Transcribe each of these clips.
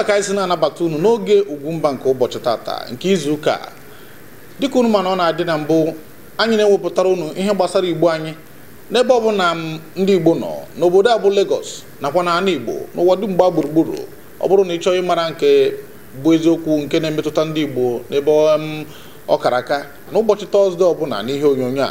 a ka anyị si na-anabata unu n'oge Ugwumba nke ụbọchị tata nke izu ụka dịka unu mana ọ na-adị na mbụ anyị na-ewepụtara unu ihe gbasara igbo anyị n'ebe ọ bụla ndị igbo nọ n'obodo a bụ Lagos nakwa na ana igbo n'ụwa dum mgba gburugburu ọ bụrụ na ị chọọ ịmara nke bụ eziokwu nke na-emetụta ndị igbo n'ebe ọkaraka aka ụbọchị tọzdee ọbụla n'ihe onyonyo a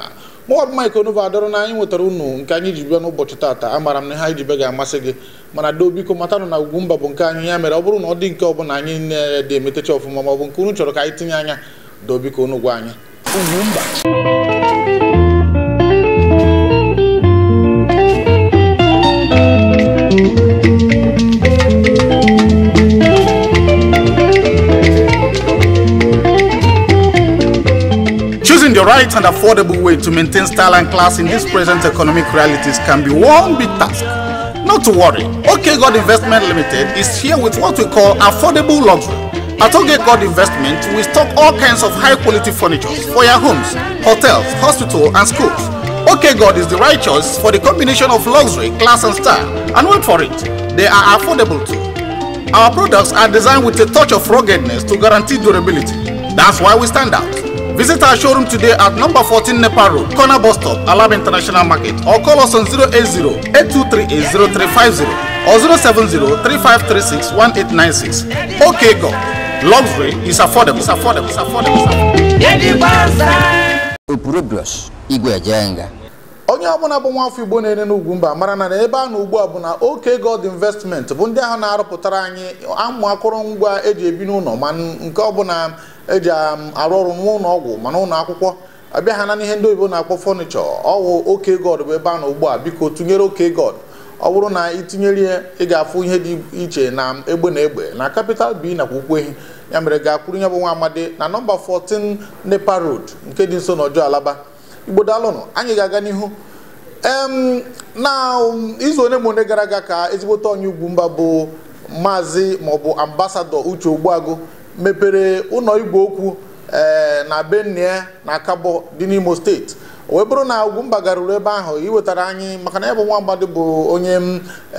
mọd mike onova dọrọ na anyị nwetara unu nke anyị ji bịa n'ụbọchị taata amara m na ha ji be ga-amasị gị mana doo biko matanụ na Ugwumba bụ nke anyị ya mere ọ bụrụ na ọ dị nke bụla anyị na-ede emetecha ọfụma ma ọ bụ nke unu chọrọ ka anyị tinye anya doo biko unu gwa anyị mba. the right and affordable way to maintain style and class in these present economic realities can be one big task. Not to worry, OK God Investment Limited is here with what we call affordable luxury. At OK God Investment, we stock all kinds of high quality furniture for your homes, hotels, hospitals, and schools. OK God is the right choice for the combination of luxury, class, and style. And wait for it, they are affordable too. Our products are designed with a touch of ruggedness to guarantee durability. That's why we stand out. Visit our showroom today at number 14 Nepal Road, corner bus stop, Alab International Market, or call us on 080 8238 or 070 3536 1896. Okay, go. Luxury is affordable. It's affordable. It's affordable. It's affordable. It's affordable. It's affordable. onye ọbụla bụ afọ igbo na-ere n'ugwu mba mara na ebe a na ugbu a bụ na oke god investment bụ ndị ahụ na-arụpụtara anyị amụ akụrụngwa eji ebi n'ụlọ ma nke ọbụla eji um, arụ ọrụ n'ụlọ ọgwụ mana ụlọ akwụkwọ abịa ha na ihe ndị oyibo na-akpọ fọnịchọ ọwụ oke god bụ ebe a na ugbu a biko tụnyere oke god ọ bụrụ na itinyere ya ị ga-afụ ihe dị iche na egbe na egbe na capital b nakwa ukwehi ya mere ga-akwụrụ ya bụ nwa amadi na nọmba 14 nepa road nke dị nso n'ọjọọ alaba igbo daalụnụ anyị ga-aga n'ihu na izu onye mgbe gara aga ka ezigbote onye ugwu mba bụ maazị maọbụ ambasadọ uche ogbuago mepere ụlọ igwe okwu e, na benue na kabo dị n'imo steeti wee bụrụ na ugwumba garuru ebe ahụ iwetara anyị maka na ya bụ nwa mmadụ bụ onye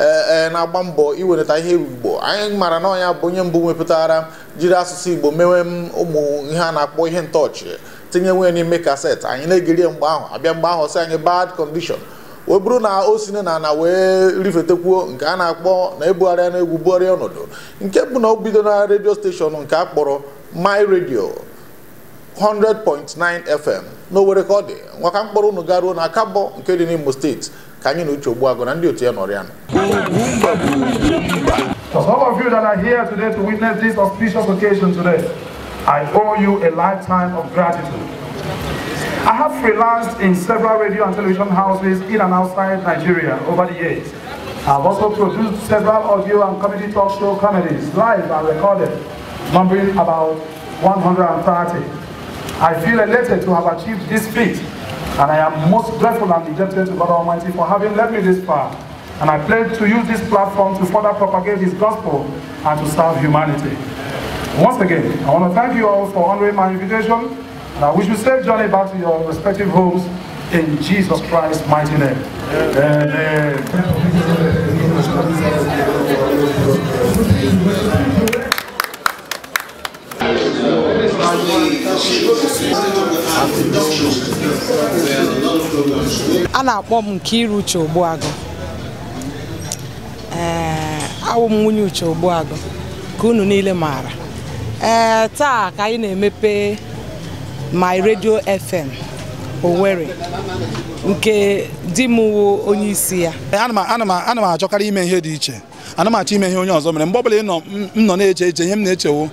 e, e, na-agba mbọ iwelata ihe igbo anyị mara na ọnya bụ onye mbụ wepụtara jiri asụsụ igbo mewe ụmụ ihe a na-akpọ ihe ntọọchị tinye nwe n'ime kasetị anyị na-egirie mgbe ahụ abịa mgbe ahụ sị anyị bad condition o bụrụ na o si na ana wee rifetekwuo nke a na-akpọ na ebugharịa na egwu bugharịa ọnọdụ nke bụ na o bido na redio steshọn nke a kpọrọ my radio 100.9 fm n'owere ka ọ dị nwaka mkpọrọ unu garuo na kabo nke dị n'imo steeti ka anyị na uche ogbuagụ na ndị otu ya nọrọ ya nọ I owe you a lifetime of gratitude. I have freelanced in several radio and television houses in and outside Nigeria over the years. I've also produced several audio and comedy talk show comedies, live and recorded, numbering about 130. I feel elated to have achieved this feat, and I am most grateful and indebted to God Almighty for having led me this far. And I pledge to use this platform to further propagate His gospel and to serve humanity. Once again, I want to thank you all for honoring my invitation, and I wish you safe journey back to your respective homes in Jesus Christ's mighty name. Amen. A na-akpọ m Nkiru Uche Ogbuagụ ee awụ m nwunye Uche Ogbuagụ ka unu niile maara ee eh, taa ka anyị na-emepe my radio fm Owerri nke di m wu onye isi ya eh, ana m achọkarị ime ihe dị iche ana m achọ ime ihe onye ọzọ mere mgbe ọbụla m nọ na-eche eche ihe m na-echewo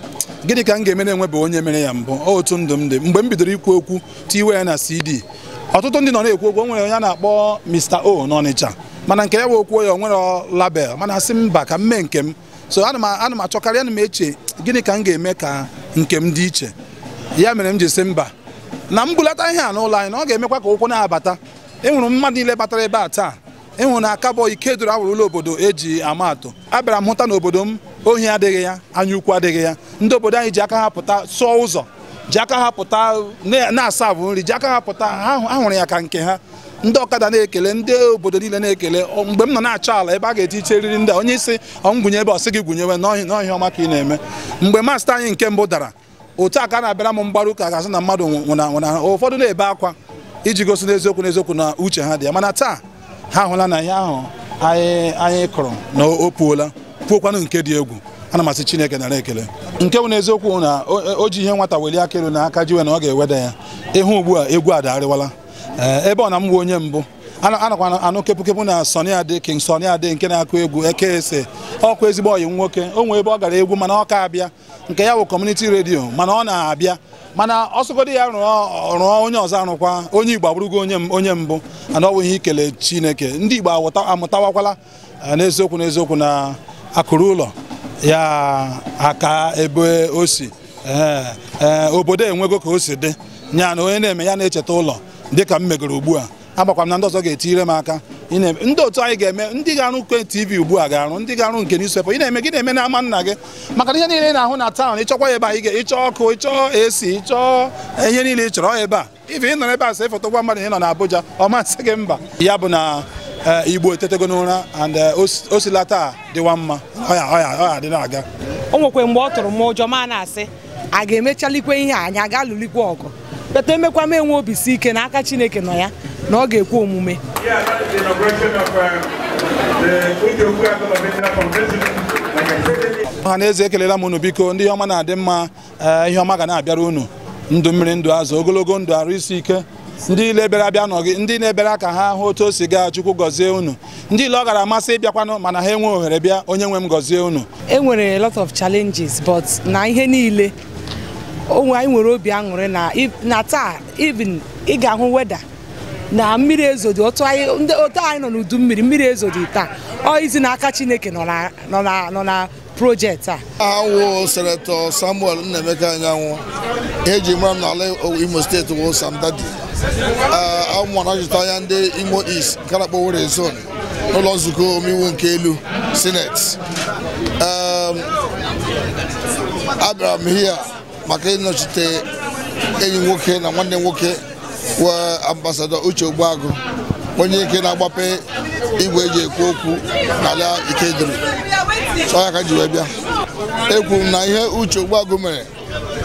gịnị ka m ga-eme na-enwebeghị onye mere ya mbụ otu ndụ m dị mgbe m bidoro ikwu okwu tiwe ya na cd ọtụtụ ndị nọ na-ekwu okwu onwere nwere onye a na-akpọ Mr. O n'Ọnịcha mana nke ya bụ okwuo ya o nwere label mana asị mba ka m mee nke m so ana m achọkarị ana m eche gịnị ka m ga-eme ka nke m dị iche ya mere m ji si mba na m bulata ihe a n'ụlọ anyị na ọ ga-emekwa ka ụkwụ na-abata enwere mmadụ niile batara ebe a taa ịhụ e na akabọ ike doro awụrụ ụlọ obodo eji ama atụ abịara m hụta na obodo m ohi adịghị ya anya ukwu adịghị ya ndị obodo anyị ji aka ha pụta sụọ ụzọ ji aka ha pụta na-asa abụ nri ji aka ha pụta ha hụrụ ya ka nke ha ndị ọkada na-ekele ndị obodo niile na-ekele mgbe m nọ na-achọ ala ebe a ga-eti iche riri ndị onye isi ọmgwụnye ebe ọsị gị gwụnyewe n'ọhịa ọma ka ị na-eme mgbe masta anyị nke mbụ dara otu a ka a na-abịara m mgbarụ ụka asị na mmadụ nwụnanwụna ụfọdụ na-ebe akwa iji gosi n'eziokwu n'eziokwu na uche ha dị ya mana taa ha hụla na ihe ahụ anyị kụrụ na o puola puokwanụ nke dị egwu ana na asị chineke nara ekele nke bụ n'eziokwu na o ji ihe nwata weli akịrụ na aka jiwe na ọ ga-eweda ya ịhụ ugbu a egwu adarịwala Eh, ebe ọ na m wu onye mbụ anakwa anụ kepụkepụ na Sunny Ade King Sunny Ade nke na-akụ egwu eke ekeese ọkụ ezigbo oyi nwoke o nwee ebe ọ gara egwu mana ọ ka abịa nke ya bụ kọmuniti redio mana ọ na-abịa mana ọsọgodi ya rụọ onye ọzọ arụkwa onye Igbo abụrụgo onye mbụ ana wụghị ikele Chineke ndị Igbo amụtawakwala eh, n'eziokwu n'eziokwu na akụrụ ụlọ ya aka ebe o si eh, obodo enwego ka o si dị nya na onye na-eme ya na-echeta ụlọ dịka m megoro ugbu a agbakwa m na ndị ọzọ ga-etinyere m aka ndị otu anyị ga-eme ndị ga-arụ nke tv ugbu a ga-arụ ndị ga-arụ nke newspaper ị na-eme gị na-eme na ama nna gị maka ihe niile ị na-ahụ na taụn ịchọkwa ebe anyị ịchọ ọkụ ịchọ esi ịchọọ ihe niile ị chọrọ ebe a ife ị nọ ebe a sị foto gwa mmadụ ị nọ na abụja ọ masị gị mba ya bụ na eh, igbo etetego n'ụra and eh, osila taa dịwa mma ọ dị na-aga o nwekwe mgbe ọ tụrụ m ụjọ ma na-asị a ga-emechalikwe ihe anyị ọgụ bata emekwa m enwe obisi ike na aka Chineke nọ ya na ọ ga-ekwe omume ọha na eze ekelela m unu biko ndị ọma na-adị mma eh, ihe ọma ga na-abịara unu ndụ mmiri ndụ azụ ogologo ndụ arụ isi ike ndị ile bịara abịa ndị na-ebere ka ha hụ otu o si gaa chukwu gọzie unu ndị ile ọ gara amasị ịbịakwanụ mana ha enwe ohere bịa onye nwe m gọzie unu enwere lot of challenges but na ihe niile onwe anyị nwere obi aṅụrị na taa even ị ga-ahụ weda na mmiri ezodi otu anyị nọ n'udu mmiri mmiri ezodi taa ọ izi aka Chineke nọ na projekti a awụ senetọ Samuel Nnaemeka Anyanwụ eji mara m n'ala Imo steeti wụ Sam Dadi anya ndị Imo East nke na-akpọ Were n'ụlọ nzukọ omeiwu nke elu Senet. abịara m hia maka ịnọchite enyi nwoke na nwanne nwoke wee ambasadọ Uche Ogbuagụ onye ike na-agbape igwe eji ekwu okwu n'ala Ikedịrị so ka ji wee bịa ekwu na ihe Uche Ogbuagụ mere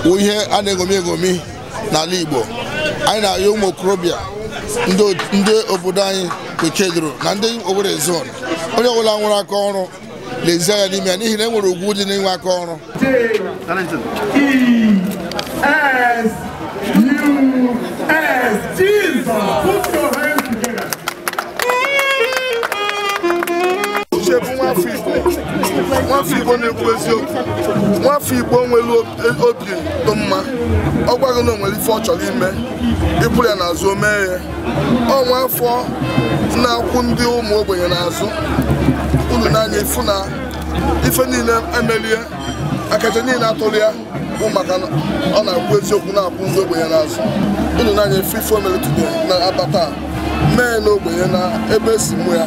bụ ihe a na-egomi egomi n'ala Igbo anyị na-ayọ ụmụ okorobịa ndị obodo anyị bụ Ikedịrị na ndị obodo zon onye ọbụla nwere aka ọrụ lezie ya n'ime ya n'ihi na e nwere ugwu dị n'inwe aka ọrụ uche bụ nwafọ igbo igbo na-ekwu eziokwu nwafọ igbo nwere obi dị mma ọ gwaghị na o nwere ife ọ chọrọ ime ịpụrụ ya n'azụ o mee ya ọ na-akwụ ndị ụmụ ogbenye n'azụ unu n'anya ifu na ife niile emelie akacha niile atụrụ ya bụ maka ọ na-akwụ eziokwu na-akwụ ndị ya n'azụ unu n'anya ife ife omere na abata mee n'ogbenye na ebe si mụ ya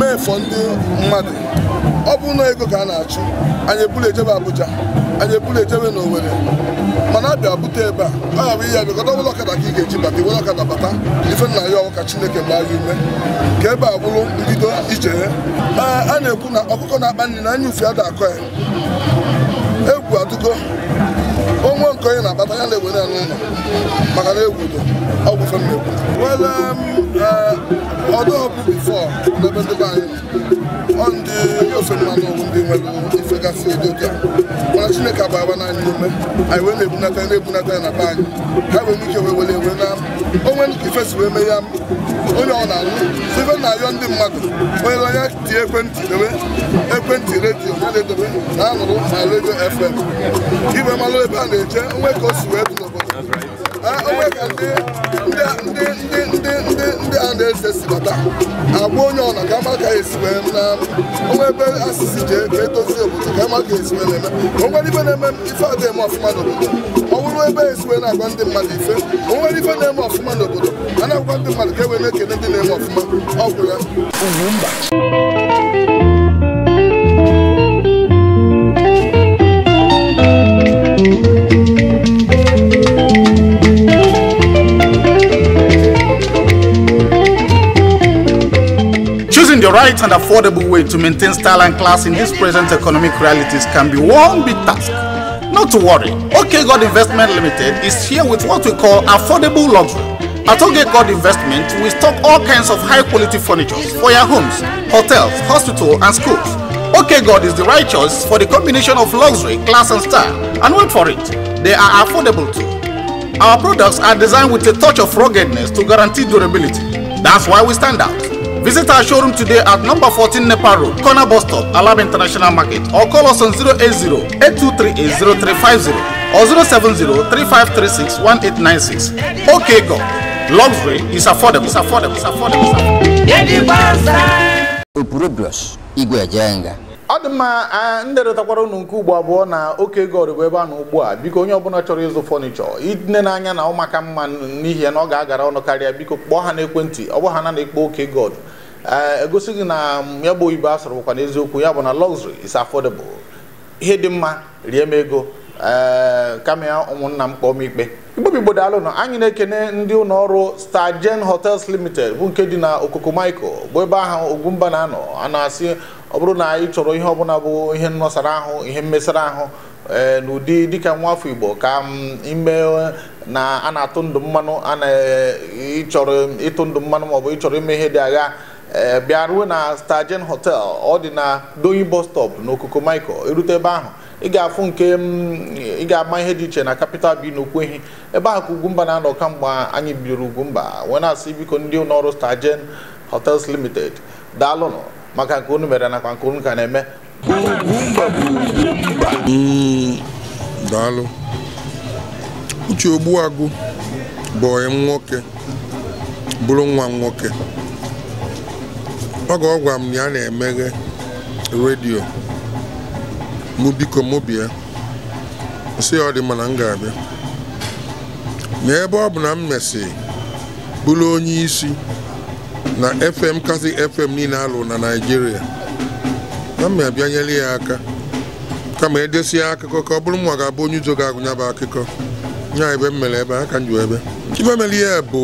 mee fọ ndị mmadụ ọ bụ na ego ka a na-achụ anyị ebulu ejebe Abuja anyị ebulu ejebe na Owerri mana abịa bute ebe a a ga-abụ ihe ya bịakọta ọbụla ọkada ka ị ga-eji bata iwere ọkada bata ife nna ya ọwụ Chineke gbaa ya ume ka ebe a bụrụ mbido ije a na-ekwu na ọkụkọ na-akpa nri na anya ufe ada akọ ya egwu adụgo onwe nke onye na-abata ya na-egwere ya n'ụlọ maka na egwudo ọgwụ femegwu wele eh, ọdọọbụ bifọ n'ebe ndị be anyị ọ ndị ofe mmanụ ọgwụ ndị nwere ifegasị edoka mana chineke agbagba n'anyị ume anyị wee na-ebunata ya na-ebunata ya na be anyị ha nwere ike wee were ewe na onwe ife si wee mee ya onye ọ na-alụ ife na-ayọ ndị mmadụ onye onye tie ekwentị dobe ekwentị redio ya na-edobe na anụrụ na redio fm iwe malụ ebe a na-eje onwe ka n'obodo onwe ka ndị a na-eze si bata agwa onye ọna ka ama ka esi wee na ebe asịsị ji ka e, edozi obodo ka ama ka esi na-eme onwere ife na-eme ife adịghị eme ọfụma n'obodo ọ bụrụ ebe esi wee na-agwa ndị mmadụ ife onwere ife na-eme ọfụma n'obodo a na-agwa ndị mmadụ ka e wee na-ekene ndị na-eme ọfụma ọ gwụrụ ya right and affordable way to maintain style and class in these present economic realities can be one big task. Not to worry, OK God Investment Limited is here with what we call affordable luxury. At OK God Investment, we stock all kinds of high quality furniture for your homes, hotels, hospitals, and schools. OK God is the right choice for the combination of luxury, class, and style. And wait for it, they are affordable too. Our products are designed with a touch of ruggedness to guarantee durability. That's why we stand out. Visit our showroom today at number 14 Nepal Road, corner bus stop, Alab International Market, or call us on 080 8238 or 070 3536 1896. Okay, go. Luxury is affordable. It's affordable. It's affordable. It's affordable. ọ dị mma ndị retakwara unu nke ugbo abụọ na oke ego ọrịbụ ebe a na ugbu a biko onye ọbụla chọrọ ịzụ fọnichọ ịdịne n'anya na ụmụaka mma n'ihi na ọ ga-agara ọnụ karịa biko kpọọ ha n'ekwentị ọ bụ ha na na-ekpo oke god Eh, egosi gị na ya bụ oyibo asụrụ bụkwa n'eziokwu ya bụ na luxury is affordable ihe dị mma rie m ego ee eh, kama ya ụmụnna m kpọọ m ikpe igbobi gbodalụnụ anyị na-ekene ndị ụlọ ọrụ Stargen Hotels Limited bụ nke dị na Okoko Michael bụ ebe ahụ Ogwumba na-anọ a na-asị ọ bụrụ na ị chọrọ ihe ọbụla bụ ihe nnọsara ahụ ihe mmesara ahụ eh, n'ụdị dịka nwa afọ Igbo ka ime na a na-atụ ndụ mmanụ a na-ịchọrọ ịtụ ndụ mmanụ maọbụ ịchọrọ ime ihe dị agha Eh, bịa ruo na Stajen hotel ọ dị na Doyin bus stop n'okoko Michael erute ebe ahụ ị ga-afụ nke mm, ị ga-ama ihe dị iche na capital bi n'Okwehi ebe ahụ ka Ugwumba na-anọ kamgbe anyị bidoro Ugwumba wee na-asị biko ndị ụlọọrụ Stajen Hotels Limited daalụnụ maka nke unu mere nakwa nke unu ka na-eme daalụ uche ogbuagụ bụ nwoke bụrụ nwa nwoke oge ọ ọgwa m na ya na-emeghe redio mụ biko mụ bịa ọ dị mana m ga-abịa na ebe ọ bụ na m mesị bụrụ onye isi na fm kasị fm niile alụ na naijiria na m abịanyere ya aka kama edesi ya akụkọ ka ọ bụrụ m ga-abụ onye uzo ga-agụnya bụ akụkọ nya ebe m mere ebe aka m ju ebe ibe mere ihe bụ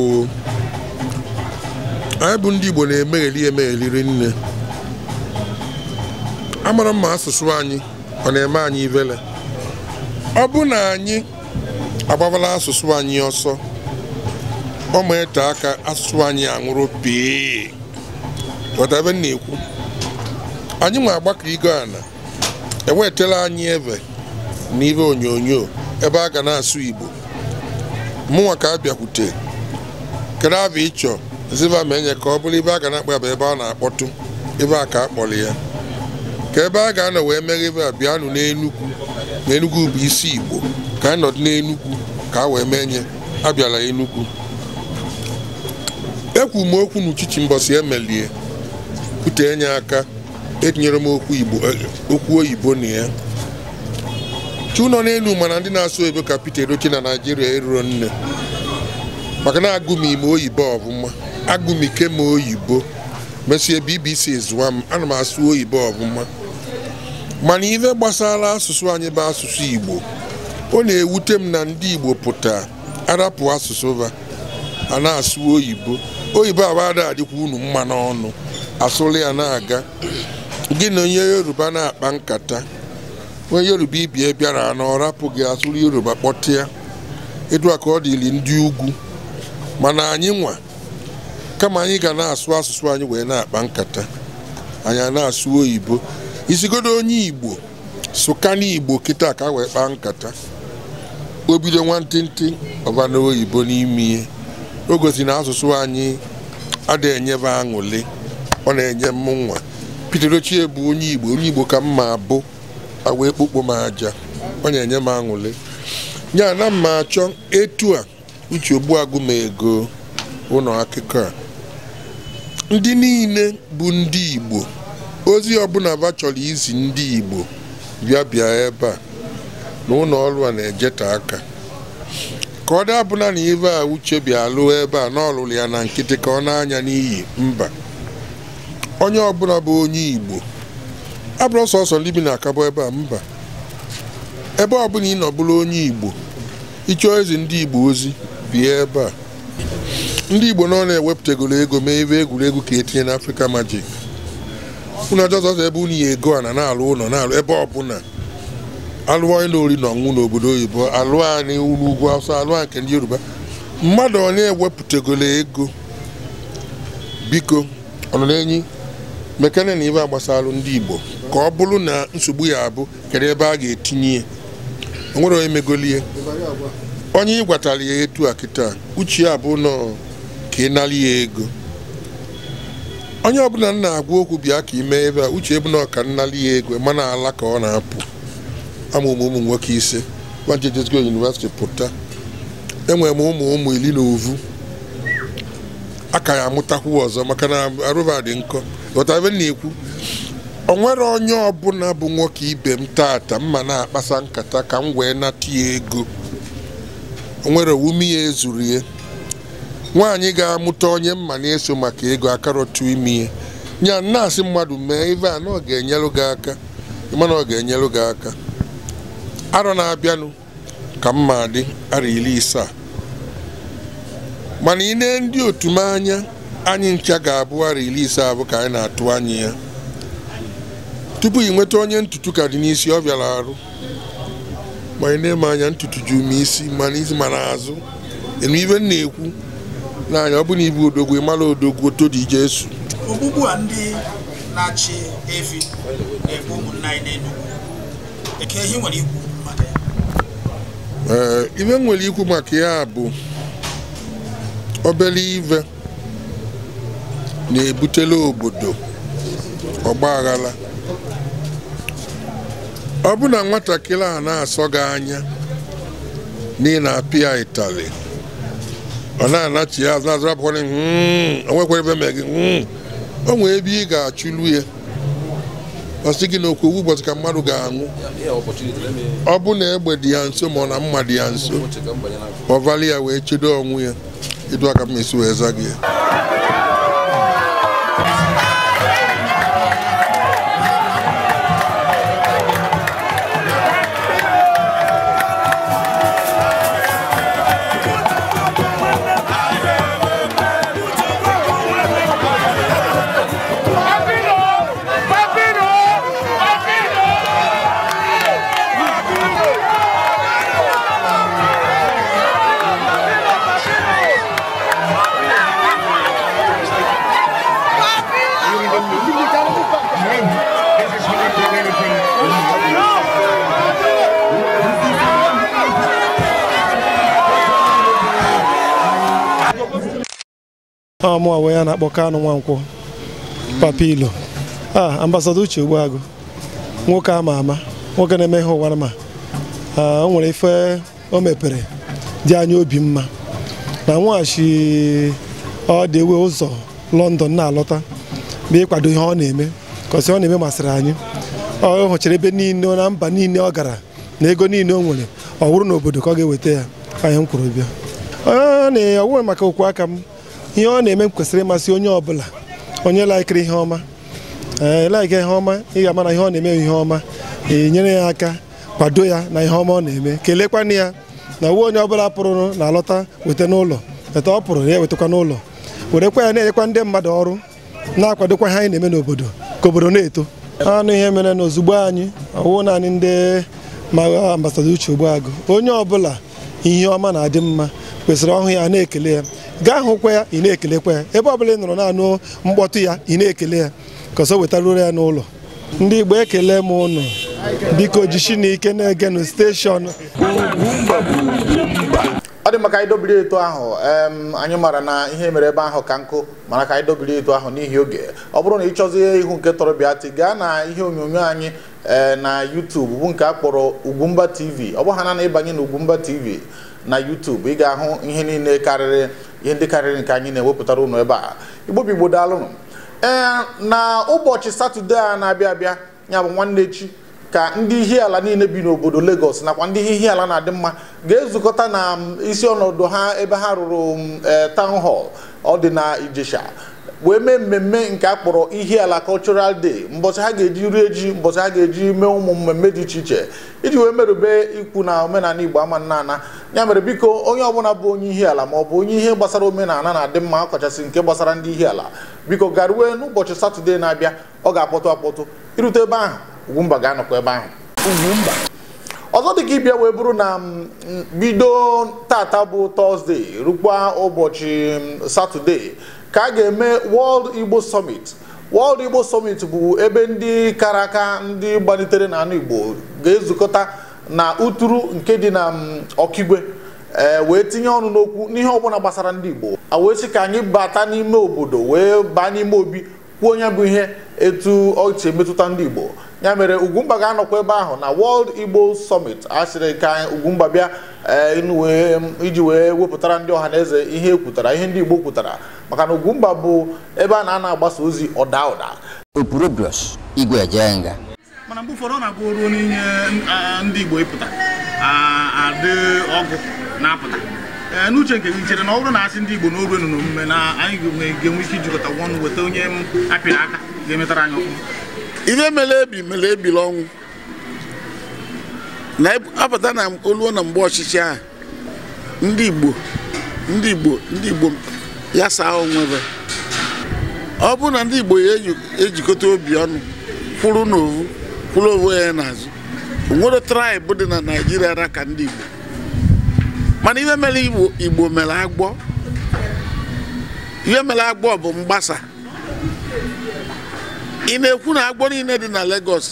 anyị bụ ndị Igbo na-emegheli emegheli nne amara mma asụsụ anyị ọ na-eme anyị ivele ọ bụ na anyị agbabala asụsụ anyị ọsọ ọ ma ete aka asụsụ anyị anwụrụ pee ebe na-ekwu anyị nwe agbakọ igo ana ewetela anyị eve na ibe onyonyo ebe a ga na-asụ Igbo mụnwa ka a bịakwute kedu abịa ịchọ ziva ma enye ka ọ bụrụ ibe a ga na-akpa bụ ebe a na-akpọtụ ebe a ka a kpọrọ ya ka ebe a ga-anọ wee meghe ebe a bịanụ n'enugwu na enugwu bụ isi igbo ka anyị nọdụ n'enugwu ka a wee mee nye abịala enugwu ekwu m okwu n'uchichi mbọsi emelie kwute enye aka etinyere m okwu eh, oyibo na ya chi n'elu mana ndị na-asụ oyibo ka Peter Edochie na Naijiria eruro nne maka na agụmi m oyibo ọbụma ike ma oyibo mesie bbc zụwa m ana m asụ oyibo ọbụma mana ihe gbasara asụsụ anyị bụ asụsụ igbo ọ na-ewute m na ndị igbo pụta arapụ asụsụ ba a na-asụ oyibo oyibo awada adịkwa unu mma n'ọnụ asụrụ ya na-aga gị na onye yoruba na-akpa nkata onye yoruba ibie bịara na gị asụrụ yoruba kpọtịa edu ka ọ dịrị ndị ugwu mana anyị nwa kama anyị ga na-asụ asụsụ anyị wee na-akpa nkata anyị na-asụ oyibo isigodo onye igbo na igbo kịta ka wee kpaa nkata o bido nwantịntị ọbanoyibo oyibo n'ime ihe o gosi na asụsụ anyị adịghị enyebe aṅụlị ọ na-enye m nwa Peter Ochie bụ onye igbo onye igbo ka m ma bụ wee kpokpo m aja ọ na-enye m aṅụlị ya na mma achọ etu a uche ogbuagụ ma ego ụlọ akụkọ a ndị niile bụ ndị igbo ozi ọbụla ba chọrọ izi ndị igbo bịa bịa ebe a na ụlọ ọrụ a na-ejeta aka ka ọ dabụla na ibe a uche bịa lụọ ebe a na ọlụlụ ya na nkịtị ka ọ na-anya n'iyi mba onye ọbụla bụ onye igbo abụrụ sọsọ ndị bi na akabụ ebe a mba ebe ọbụla ị nọbụla onye igbo ịchọọ ezi ndị igbo ozi bie ebe a ndị Igbo nọ na ewepụtagolo ego mee ebe egwuregwu ka etinye na Africa Magic unu ajọzọzọ ebe unu ya ego a na na-alụ ụlọ na-alụ ebe ọbụla alụọ ịlụ ori na ọṅụṅụ n'obodo oyibo alụ anyị ụlọ ugwu awụsa alụ a nke ndị Yoruba mmadụ ọ na-ewepụtagoro ego biko ọnọ na-enyi mekana na ibe agbasalụ ndị Igbo ka ọ bụrụ na nsogbu ya abụ kedu ebe a ga-etinye onwere nwere onye megolie onye ị gwatara ya etu a kịta uche ya bụ nọ ka ị nara ya ego onye ọbụla m na-agwa okwu bịa ka ime ebe a uche bụ nọ ka nnara ya ego mana ala ka ọ na-apụ Ama ụmụ nwoke ise wajejesgo yunivesiti pụta enwere m ụmụ ụmụ iri na ovu ka ya amụtakwu ọzọ maka na arụba dị nkọ ghọtara na-ekwu o nwere onye ọbụla bụ nwoke ibe m taata ma na-akpasa nkata ka m wee nata ya ego nwere owume ya ezuru ya nwaanyị ga-amụta onye mma na-eso maka ego akarọtụ ime ya ya na-asị mmadụ mee ive a na ọ ga-enyelụ gị aka mana arọ na-abịanụ ka mma dị arọ iri mana ị nee ndị otu m anya anyị ncha ga-abụ arọ iri ise abụ ka anyị na-atụ anya ya tupu ị nweta onye ntutu ka dị n'isi ọ bịara arụ ma na-eme anya ntutu ju m isi mana isi mana azụ enu ibe m na-ekwu n'anya ọ bụ na ibu odogwu ịmara odogwu oto dị ije esu ogbugbu a ndị na-achị efi na-egbu ụmụnna anyị ihe nwere n'Enugu ee ibe m nwere ikwu maka ya bụ obere ive na-ebutela obodo ọgba aghara ọ bụ na nwatakịrị a na-asọ gị anya n'ihi na apịa itali ọ na-anachi ya azụazụrapụkwara hmm, nwekwara ebe mee gị hmm, o nwee ebe ị ga-achụlu ya ọ sị gị na okwu owu ụbọchị ka mmadụ ga-anwụ ọ bụ na egbe dị ya nso ma ọ na mma dị ya nso ọ vali ya wee chedo ọnwụ ya edu aka m esi wee za gị ya mụa wee ya na-akpọ kanụ Nwankwọ Papa Ilo a ambasada Uche Ogbuagụ nwoke ama ama nwoke na-eme ihe ụwa ma o nwere ife o mepere dị anya obi mma na nweghachi ọ dị ewe ụzọ London na-alọta bụ ịkwado ihe ọ na-eme kọsi ọ na-eme masịrị anyị ọ hụchara ebe niile na mba niile ọ gara na ego niile o nwere ọ wụrụ n'obodo ka ọ ga-eweta ya anyị m kwurụ bịa ọ na maka okwu aka m ihe ọ na-eme m kwesịrị ịmasị onye ọbụla onye laikiri ihe ọma ee eh, ihe ọma ị ga-ama ihe ọ na-eme ihe ọma enyere nyere ya aka kwado ya na ihe ọma ọ na-eme kelekwana ya na uwe onye ọbụla pụrụ na alọta weta n'ụlọ weta ọ pụrụ ya ewetakwa n'ụlọ werekwa ya na-enyekwa ndị mmadụ ọrụ na-akwadokwa ihe anyị na-eme n'obodo ka obodo na-eto anụ ihe mere na ozugbo anyị ọwụ naanị ndị ma ah, ambasadọ Uche agụ onye ọbụla ihe ọma na-adị mma kwesịrị ọhụ ya na-ekele ya gaa hụkwa ya ị na-ekelekwa ya ebe ọbụla ị nọrọ na mkpọtụ ya ị na-ekele ya ka wetaruru ya n'ụlọ ndị Igbo ekele m ụnụ biko jishi na ike na-egenụ steshọn ọ dị maka anyị eto ahụ anyị maara na ihe mere ebe ahụ ka nkụ mana ka anyị dobiri eto ahụ n'ihi oge ọ bụrụ na ị chọzie ihu nke tọrọ bịa gaa na ihe onyonyo anyị eh, na YouTube bụ nke a kpọrọ Ugwumba TV ọ bụ ha na ịbanye na Ugwumba TV na YouTube ị ga-ahụ ihe niile karịrị ihe ndị karịrị nke anyị na-ewepụtara ụnụ ebe a Igbo bụ Igbo ee na ụbọchị satọde a na-abịa abịa ya bụ nwanne chi ka ndị ala niile bi n'obodo Lagos nakwa ndị ala na-adị mma ga-ezukọta na um, isi ọnọdụ ha ebe ha rụrụ um, eh, town hall ọ dị na Ijesha wee mee mmemme nke a kpọrọ Ihiala cultural day mbọsị ha ga-eji rie ji mbọsị ha ga-eji mee ụmụ mmemme dị iche iche iji wee merube ikwu na omenala Igbo ama nna ya mere biko onye ọbụla bụ onye Ihiala ma ọ bụ onye ihe gbasara omenala na-adị mma ọkachasị nke gbasara ndị Ihiala biko garuwe n'ụbọchị satọde na-abịa ọ ga-akpọtụ akpọtụ irute ebe ahụ Ugwumba ga anọkọ ebe ahụ ọzọ dị ka ịbịa wee bụrụ na mm, bido tata bụ tọzde rukwa ụbọchị mm, satọde ka a ga-eme World Igbo Summit World Igbo Summit bụ ebe ndị kara aka ndị gbalitere n'anụ Igbo ga-ezukọta na uturu nke dị na mm, ọkigwe ee wee tinye ọnụ n'okwu n'ihe ọbụla gbasara ndị Igbo a wee sị ka anyị bata n'ime obodo wee baa n'ime obi kwuo onye bụ ihe etu ọchị emetụta ndị Igbo ya mere Ugwumba ga-anọkwa ebe ahụ na World Igbo Summit a sịrị ka ugumba bịa e, iji wee wepụtara ndị ọha na eze ihe e kwutara ihe ndị Igbo kwutara maka na Ugwumba bu ebe a na-ana agbasa ozi ọda ụda opurobios igwe eje nga mana mgbe ụfọdụ ọ na-abụ ruo n'ihe ndị Igbo ịpụta adị ọgụ na-apụta n'uche nke gị chere na ọ bụrụ na asị ndị Igbo n'oge nọ n'omume na na-apụta na oluo na mgbe ọchịchị ahụ ndị Igbo ndị Igbo ya saa onwebe ọ bụrụ na ndị Igbo ejikọta obi ọnụ kwụrụ n'ovu kwụrụ ovu ya n'azụ onwere traịbụ dị na naijiria ara ka ndị Igbo mana ihe mere Igbo mere agbọ ihe mere agbọ bụ mgbasa ị na-ekwu na agbọ niile dị na Lagos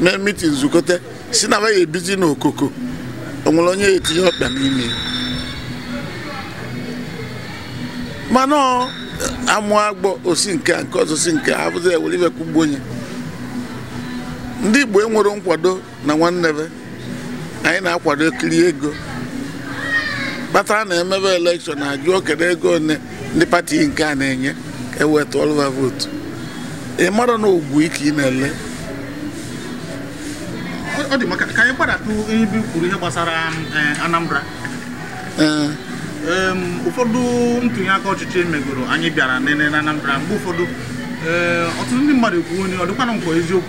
mee mitin zukọta si na ya ebizi n'okoko o nwere onye etinye ọkpa n'ime mana amụ agbọ osi nke a nke ọzọ si nke a abụzi ewere iwekwu mgbe onye ndị Igbo enwere nkwado na nwanne anyị na-akwado ekiri ego kpatara na emebe elekshọn ajụọ kedu ego one ndị pati nke a na-enye ka eweta ọlụva ị mara na ogbu ike ị na-ele ka anyị ihe gbasara eh, Anambra eh. ụfọdụ ntụnye aka ọchịchị megoro anyị bịara nene na Anambra mgbe ụfọdụ ọtụtụ ndị mmadụ ekwuo onye ọ dịkwana nkwa eziokwu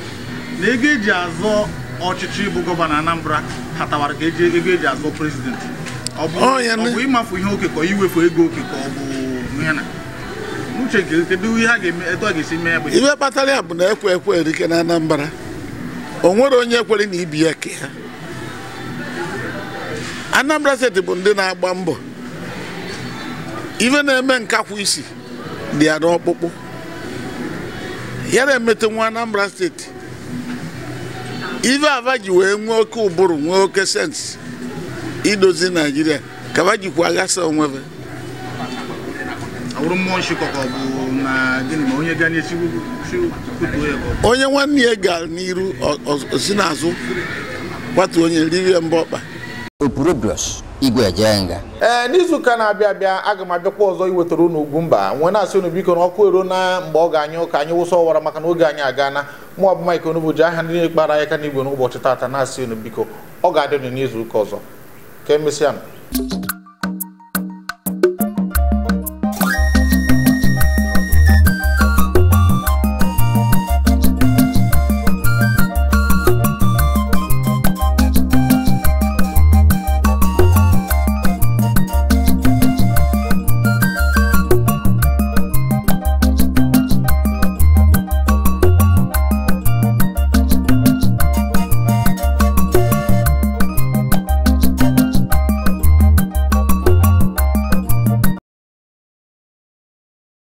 na ego eji azọ ọchịchị bụ gọvanọ Anambra hatawara ka eji ego eji azọ prezidenti ọ bụ oh, ịmafu ihe okekọ iwefu ego okekọ ọ bụ ihe na uche kedu ihe a ga-eme etu a ga-esi mee ya bụ ihe kpatara ya bụ na ekwe ekwe erike na Anambra o nwere onye kwere na ibi ya ke ha Anambra steeti bụ ndị na-agba mbọ Ive na-eme nkakwụ isi dị ya n'ọkpụkpụ ya na-emete nwa Anambra steeti ive ava wee nwee oke ụbụrụ nwee oke sensị idozi naijiria ka ava jikwa aghasa onwebe onye nwanne ya ga n'iru osi n'azụ kwatu onye riri mba ọkpa igwe jee nga ee n'izuụka na-abịa abịa aga m abịakwa ọzọ iwetara unu mba nwee na-asị unu biko na ọkụ ero na mgbe ọ ga-anyụ ka anyị wụsa ọwara maka na oge anyị na mụ bụ Mike Onugbu ji aha ndị kpara aka n'igwe n'ụbọchị tata na-asị unu biko ọ ga-adị unu n'izuụka ọzọ ka e